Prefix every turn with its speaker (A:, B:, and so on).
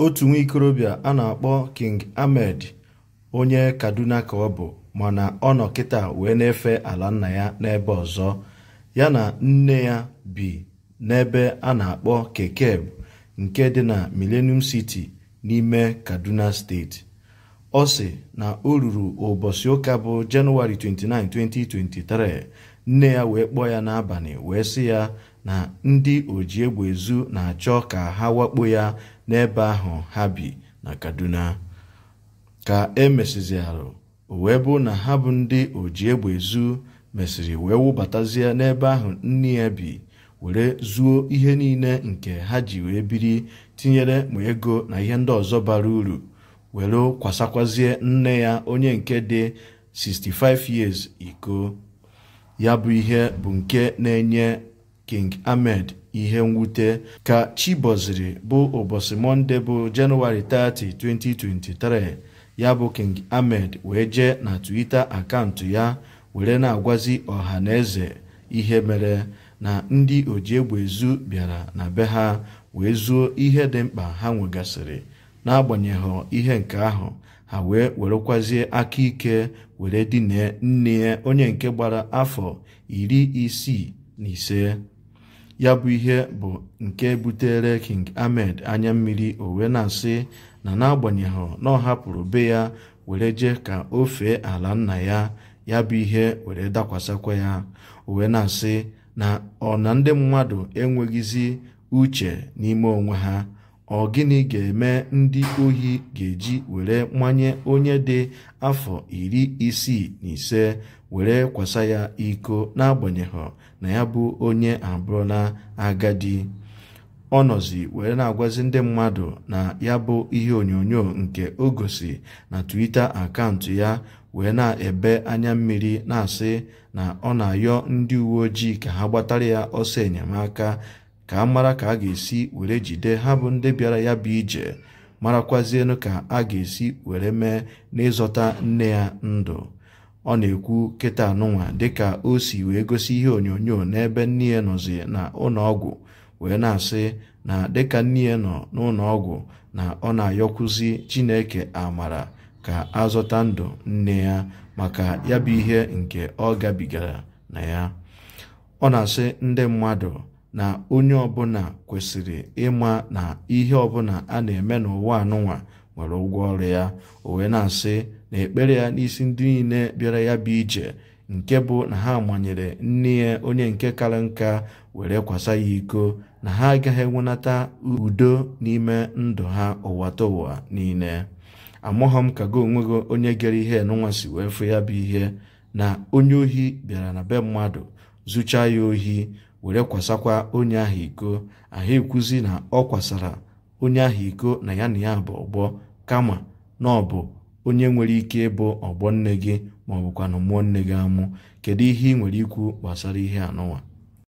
A: otu nwa ikorobịa a na-akpọ King Ahmed onye Kaduna ka ọ bụ mana ọ nọ kịta wee na-efe ala nna ya n'ebe ọzọ ya na nne ya bi n'ebe a na-akpọ Kekeb nke dị na Millennium City n'ime Kaduna steeti ọ sị na o ruru ụbọchị ụka bụ Jenụwarị 29, 2023 nne ya wee kpọọ ya n'abalị wee sị ya na ndị oji egbe na-achọ ka ha wakpo ya n'ebe ahụ ha bi na kaduna ka e mesịziarụ o wee bụ na ha bụ ndị oji egbe ezu mesịrị wee wụbatazie n'ebe ahụ nne ya bi were zuo ihe niile nke ha ji wee biri tinyere ma ego na ihe ndị ọzọ bara uru were kwasakwazie nne ya onye nke dị 65 years iko ya bụ ihe bụ nke na-enye King Ahmed ihe mwute ka chiboziri bụ ụbọchị Mọnde bụ Jenụwarị 30, 2023 ya bụ King Ahmed wee jee na Twitter akaụntụ ya were na-agwazi ọha na eze ihe mere na ndị ojiegbe ezu bịara na be ha wee zuo ihe dị mkpa ha nwegasịrị n'agbanyeghị ihe nke ahụ ha wee werekwazie aka ike were dine nne onye nke gbara afọ iri isii na ise ya bụ ihe bụ nke butere king ahmed anya mmiri o wee na-asị na n'agbanyeghị na ọ hapụrụ be ya were jee ka o fee ala nna ya ya bụ ihe were dakwasakwa ya o wee na-asị na ọ na ndị mmadụ enweghịzi uche n'ime onwe ha ọ gịnị ga-eme ndị ohi ga-eji were mmanye onye dị afọ iri isii na ise were kwasa ya iko n'agbanyeghị na ya bụ onye abụrụla agadi ọ nọzi were na-agwazi ndị mmadụ na ya bụ ihe onyonyo nke ogosi na Twitter akaụntụ ya wee na-ebe anya mmiri na-asị na ọ na-ayọ ndị uwe ojii ka ha gbatara ya ọsọ enyemaka ka a mara ka a ga-esi were jide ha bụ ndị bịara ya bụ ije marakwazienụ ka a ga-esi were mee n'ịzọta nne ya ndụ ọ na-ekwu kịta anụnwa dịka o si wee gosi ihe onyonyo n'ebe nne ya nọzi na ụlọọgwụ wee na-asị na dịka nne ya nọ n'ụlọọgwụ na ọ na-ayọkwuzi Chineke amara ka azọta ndụ nne ya maka ya bụ ihe nke ọ gabigara na ya ọ na-asị ndị mmadụ na onye ọbụla kwesịrị ịma na ihe ọbụla a na-eme n'ụwa anụnwa nwere ụgwọ ọrụ ya o wee na-asị na ekpere ya n'isi ndị niile bịara ya bụ ije nke bụ na ha manyere nne ya onye nke kara nka were kwasa ya iko na ha agaghị enwenata udo n'ime ndụ ha ụwa ụwa niile amụghọ m ka gị onwe gị onye gere ihe n'ụwa si wee fụ ya bụ ihe na onye ohi bịara na be mmadụ zụchaa ya ohi were kwasakwa onye ahụ iko ahụ ekwuzi na ọ kwasara onye ahụ iko na ya na ya bụ ọgbọ kama na ọ bụ onye nwere ike ịbụ ọgbọ nne gị ma ọ mụọ nne gị amụ kedu ihe ị nwere ikwu gbasara ihe anọwa